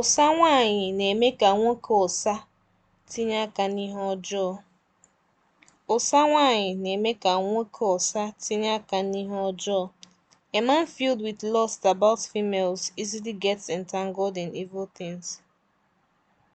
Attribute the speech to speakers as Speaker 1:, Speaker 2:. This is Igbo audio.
Speaker 1: Ụsa nwaanyị na-eme ka nwoke ụsa tinye aka n'ihe ọjọọ. nwaanyị na-eme ka nwoke tinye aka n'ihe ọjọọ. A man filled with lust about females easily gets entangled in evil
Speaker 2: things.